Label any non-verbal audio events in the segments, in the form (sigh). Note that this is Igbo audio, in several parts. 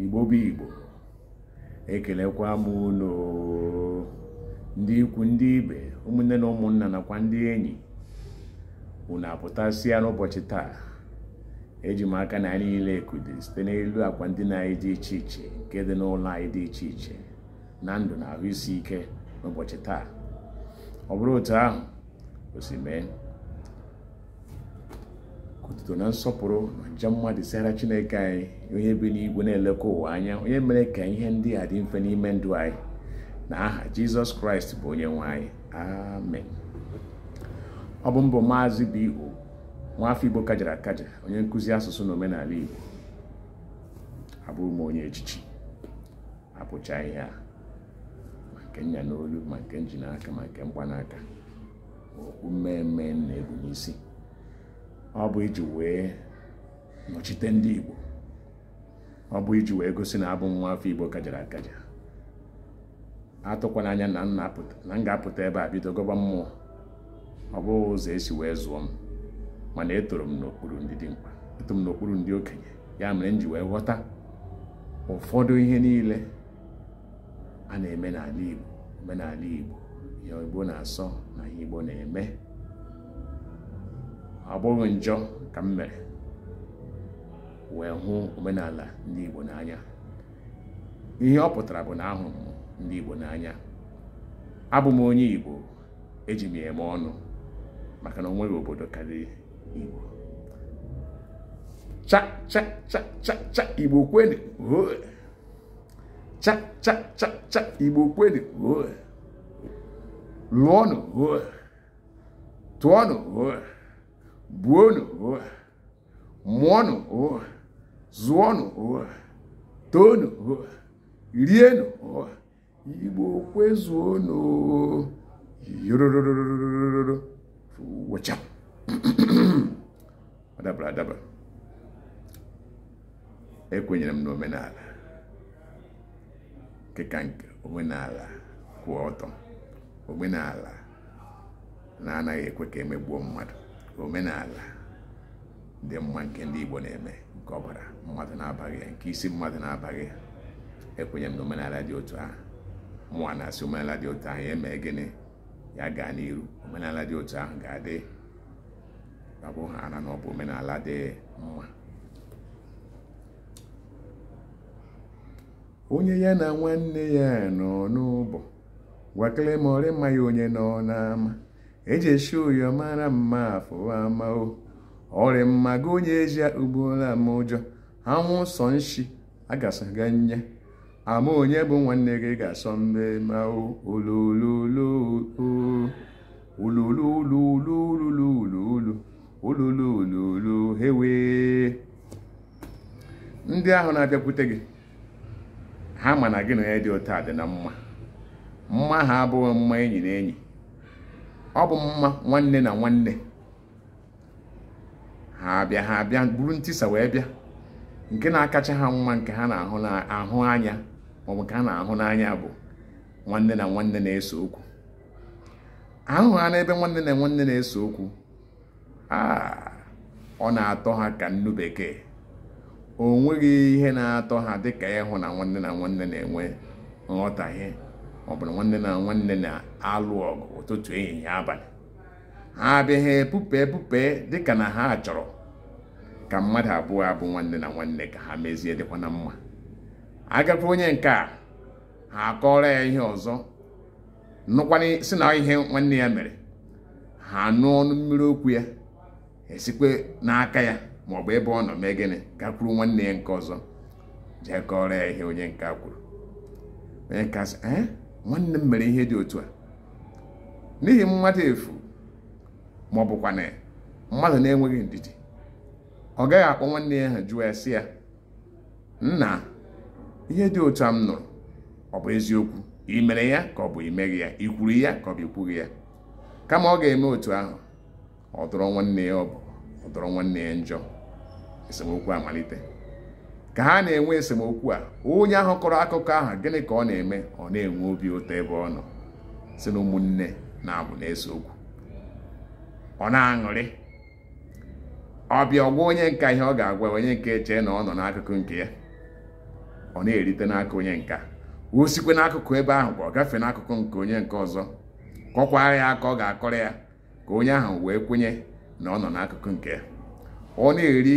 igbo bụ igbo ekelekwa m ụlọ ndị ikwu ndị ibe ụmụnne na ụmụnna nakwa ndị enyi unu apụtasịa n'ụbọchị taa eji m aka na anyị niile ekude site n'elu akwa ndina anyị dị iche iche nke dị n'ụlọ anyị dị iche iche na ndụ na ahụ isi ike n'ụbọchị taa ọ bụrụ otu ahụ o si mee otuto na nsọpụrụ na nje mmadụ dịsara chineke anyị onye bi n'igwe na-eleko ụwa anya onye mere ka ihe ndị a dị mfe n'ime ndụ anyị na aha jizọs kraịst bụ onye nwanyị anyị amen ọ bụ mbụ maazị B.O nwaafọ igbo kajara akaja onye nkụzi asụsụ na omenala igbo abụrụ m onye echichi abụcha ihe a ma nke nya n'olu ma nke nji n'aka ma nke mgbanaka okwu mmemme na egwu n'isi ọ bụ iji wee nọchite ndị Igbo ọ bụ iji wee gosi na abụ nwa afọ Igbo kajara akaja atụkwananya anya na na m ga-apụta ebe a bido gọba mmụọ ọ bụghị ụzọ esi wee zụọ m mana etoro m n'okpuru ndị dị mkpa eto m n'okpuru ndị okenye ya mere m ji wee ghọta ụfọdụ ihe niile a na-eme n'ala Igbo omenala Igbo ihe Igbo na-asọ na ihe Igbo na-eme ọ njọ ka m mere wee hụ omenala ndị Igbo n'anya ihe ọ pụtara bụ na ahụrụ m ndị Igbo n'anya abụ m onye Igbo eji m eme ọnụ maka na o obodo karịrị Igbo cha-cha-cha-cha-cha Igbo kwenu cha-cha-cha-cha Igbo kwenu lụọnụ tụọnụ buonu mụọnụ zụọnụ toonu rienụ igbo kwezuonụ yorororororo wụcha (clears throat) adabara adaba ekwenyere m n'omenala nkeka nke omenala kwụ ọtọ omenala na-anaghị ekwe ka emegbuo mmadụ omenala dị mma nke ndị Igbo na-eme nke ọbara mmadụ na-abaghị ya nke isi mmadụ na-abaghị ya ekwenye m na omenala dị otu ahụ mụnwa na-asị omenala dị otu ahụ ya gịnị ya gaa n'iru omenala dị otu ahụ ga-adị abụ ha na omenala dị mma onye ya na nwanne ya nọ n'ụbọ gwakele ma ọrị mma ya onye nọ n'ama ejeshi ụyọ mara mma afụwa mao ọrịmma gị onye ezi akpagbuola m ụjọ anwụ sọ nshi agasaga nye ama onye bụ nwanne gị ga-asọ mmemme olululululululululu olulululu hewe ndị ahụ na-abịakwute gị ha ma na gị na ya dị ụtọ dị na mma mma ha abụghị mma enyi na enyi ọ bụ mma nwanne na nwanne ha bịa ha bịa buru ntisa wee bịa nke na-akacha ha mma nke ha na-ahụ anya maọbụ nke ha na-ahụ n'anya bụ nwanne na nwanne na-ese okwu ahụ ha n'ebe nwanne na nwanne na-ese okwu ọ na-atọ ha ka nnu bekee o nweghị ihe na-atọ ha dịka ịhụ na nwanne na nwanne na-enwe nghọtahie ọ bụrụ nwanne na nwanne na-alụ ọgụ ụtụtụ ehihie abalị ha abịaghị epupe epupe dịka na ha chọrọ ka mmadụ abụọ abụ nwanne na nwanne ka ha mezie dịkwa na mma agakwa onye nke a ha akọrọ ya ihe ọzọ nụkwana si na ihe nwanne ya mere ha nụ ọnụ mmiri okwu ya esikwe n'aka ya maọbụ ebe ọ nọ mee gịnị gakwuru nwanne ya nke ọzọ jee kọrọ ya ihe onye nke a kwuru onye nke a sị nwanne m mere ihe dị otu a n'ihi mmadụ efu ma ọ mmadụ na-enweghị ndidi ọ gaghị akpọ nwanne ya ha jụọ ya sị ya nna ihe dị otu a m nụrụ ọ bụ eziokwu ị mere ya ka ọ bụ imeghị ya ị kwuru ya ka ọ bụ ikwughị ya kama ọ ga-eme otu ahụ ọ dọrọ nwanne ya ọ bụ ọ nwanne ya njọ esemokwu amalite ka ha na-enwe esemokwu a onye ahụ kọrọ akụkọ ahụ gịnị ka ọ na-eme ọ na-enwe obi ụtọ ebe ọ nọ si na ụmụnne na-abụ na-ese okwu ọ na-aṅụrị ọbịa ọgwa onye nka ihe ọ ga-agwa onye nke chee na ọ nọ n'akụkụ nke ya ọ na-erite n'aka onye nka o sikwe n'akụkụ ebe ahụ ka ọ gafee n'akụkụ nke onye nke ọzọ kọkwaa ya aka ọ ga-akọrọ ya ka onye ahụ wee kwenye na ọ nọ n'akụkụ nke ya ọ na-eri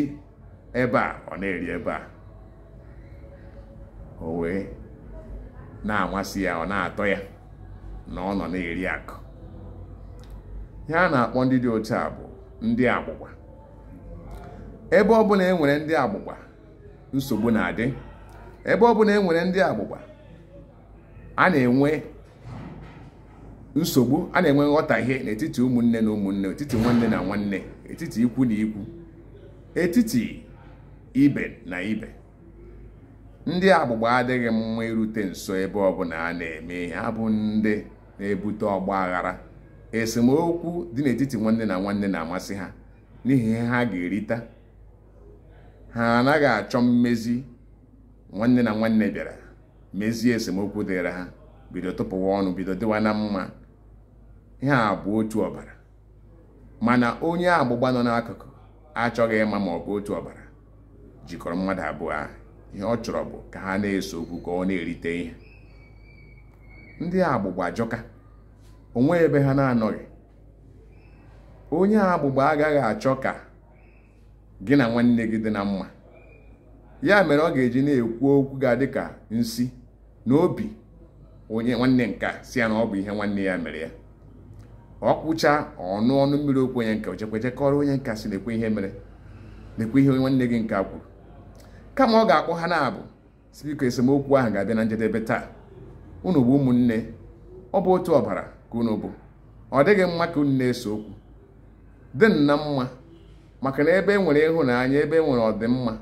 ebe a ọ na-eri ebe a o wee na-amasị ya ọ na-atọ ya na ọ nọ na-eri akụ ihe a na-akpọ ndị dị otu a bụ ndị agbụgba ebe ọbụla e nwere ndị agbụgba nsogbu na-adị ebe ọbụla e nwere ndị agbụgba a na-enwe nsogbu a na-enwe nghọtahie n'etiti ụmụnne na ụmụnne etiti nwanne na nwanne etiti ikwu na ikwu etiti ibe na ibe ndị agbụgba adịghị mma irute nso ebe ọbụla a na-eme ihe abụ ndị na-ebute ọgba aghara esemokwu dị n'etiti nwanne na nwanne na-amasị ha n'ihi ihe ha ga-erita ha anaghị achọ mmezi nwanne na nwanne bịara mezie esemokwu dịrị ha bido tụpụwa ọnụ bido dịwa na mma ihe a bụ otu ọbara mana onye agbụgba nọ n'akụkụ achọghị ịma ma ọ bụ otu ọbara jikọrọ mmadụ abụọ ahụ ihe ọ chọrọ bụ ka ha na-eso okwu ka ọ na-erite ihe ndị agbụgba ajọka onwe ebe ha na-anọghị onye agbụgba agaghị achọ ka gị na nwanne gị dị na mma ya mere ọ ga-eji na-ekwu okwu ga-adị ka nsi na obi onye nwanne nka si ya na ọ bụ ihe nwanne ya mere ya ọ kwụcha ọnụ ọnụ mmiri okwu onye nke ochekwa chekọrọ onye nka si na-ekwe ihe mere na-ekwe ihe nwanne gị nka kwuru kama ọ ga-akpọ ha na-abụ sibiko esemokwu ahụ ga-abịa na njedebe taa unu bụ ụmụnne ọ bụ otu ọbara ka unu bụ ọ dịghị mma ka unu na-ese okwu dị na mma maka na ebe e nwere ịhụnanya ebe e nwere ọdịmma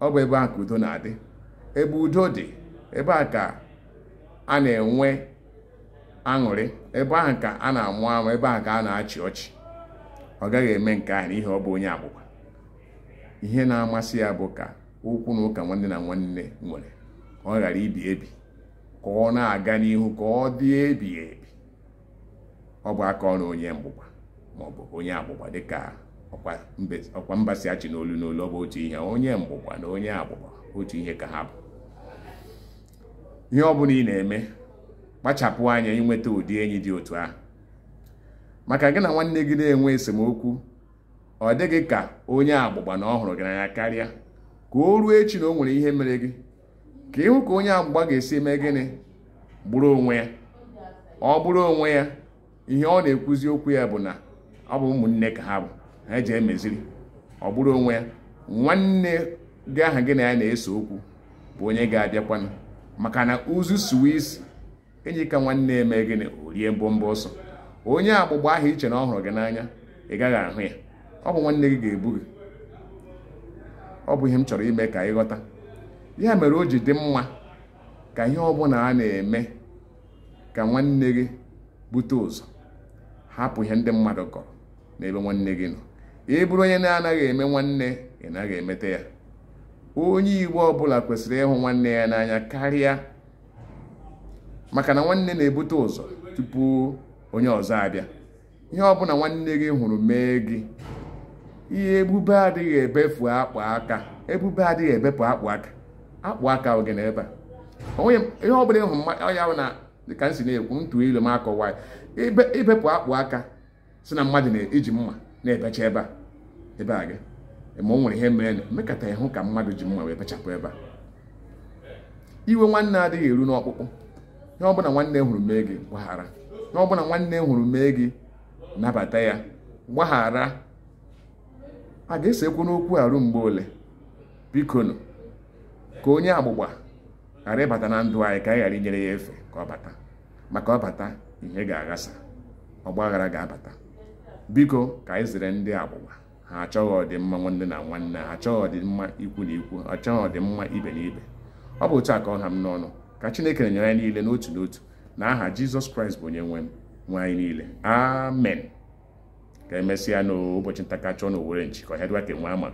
ọ bụ ebe a ka udo na-adị ebe udo dị ebe a ka a na-enwe aṅụrị ebe ahụ ka a na-amụ amụ ebe ahụ ka a na-achị ọchị ọ gaghị eme nke ahụ n'ihi ọ bụ onye agbụgba ihe na-amasị ya bụ ka ụkwụ na ụka nwanne na nwanne nwere ka ọ ghara ibi ebi ka ọ na-aga n'ihu ka ọ dị ebi ebi ọ bụ aka ọrụ onye mgbụgba maọbụ onye agbụgba dịka ọkwa mba achị n'olu n'olu ọ bụ otu ihe onye mgbụgba na onye agbụgba otu ihe ka ha bụ ihe ọ bụla ị na-eme kpachapụ anya ịnweta ụdị enyi dị otu ahụ maka gị na nwanne gị na-enwe esemokwu ọ dịghị ka onye agbụgba na ọ hụrụ gị n'anya karịa ka o ruo echi na o nwere ihe mere gị ka ịhụ ka onye agbụgba ga-esi eme gịnị gburu onwe ya ọ bụrụ onwe ya ihe ọ na-ekwuzi okwu ya bụ na ọ bụ ụmụnne ka ha bụ ha eji emeziri ọ bụrụ onwe ya nwanne gị aha gị na ya na-ese okwu bụ onye ga-abịakwanụ maka na uzu swiss enyi ka nwanne eme gịnị o mbọmbọ ọsọ onye agbụgba ahụ iche na ọ hụrụ gị n'anya ị gaghị ahụ ya ọ bụ nwanne gị ga-ebu gị ọ bụ ihe m chọrọ ime ka ghọta ya mere o ji dị mma ka ihe ọbụla a na-eme ka nwanne gị bute ụzọ hapụ ihe ndị mmadụ kọrọ n'ebe nwanne gị nọ ị bụrụ onye na-anaghị eme nwanne ị naghị emete ya onye igbo ọbụla kwesịrị ịhụ nwanne ya n'anya karịa maka na nwanne na-ebute ụzọ tupu onye ọzọ abịa ihe ọbụla nwanne gị hụrụ mee gị ihe ebube adịghị ebefu akpụ aka ebube adịghị ebepụ akpụ aka akpụ aka oge na ebe a ihe ọ bụla ịhụ ya na dịka m si na-ekwu ntụ ilu m akọwa ibepụ akpụ aka si na mmadụ na-eji mma na-ebecha ebe a ebe a gị ma o nwere ihe mere mekata ịhụ ka mmadụ ji mma wee bechapụ ebe a iwe nwanne adịghị eru n'ọkpụkpụ ihe ọbụla nwanne hụrụ mee gị gbaghara ihe ọbụla nwanne hụrụ mee gị nabata ya gbaghara a ga-esekwu n'okwu arụ mgbe ole bikonu ka onye agbụgba ghara ịbata na ndụ anyị ka anyị ghara inyere ya efe ka ọ bata maka ọ bata ihe ga-aghasa ọgba aghara ga-abata biko ka anyị zere ndị agbụgba ha achọghị ọdịmma nwanne na nwanne ha achọghị ọdịmma ikwu na ikwu achọghị ọdịmma ibe na ibe ọ bụ otu a ka ọ ha m n'ọnụ ka chineke na nyere anyị niile n'otu n'otu na aha jizọs kraịst bụ onye nwe m nwe anyị niile amen ka emesịa n'ụbọchị ntakachi ọ na Owerri nchi ka ọhịa e dịwa ka enwe ama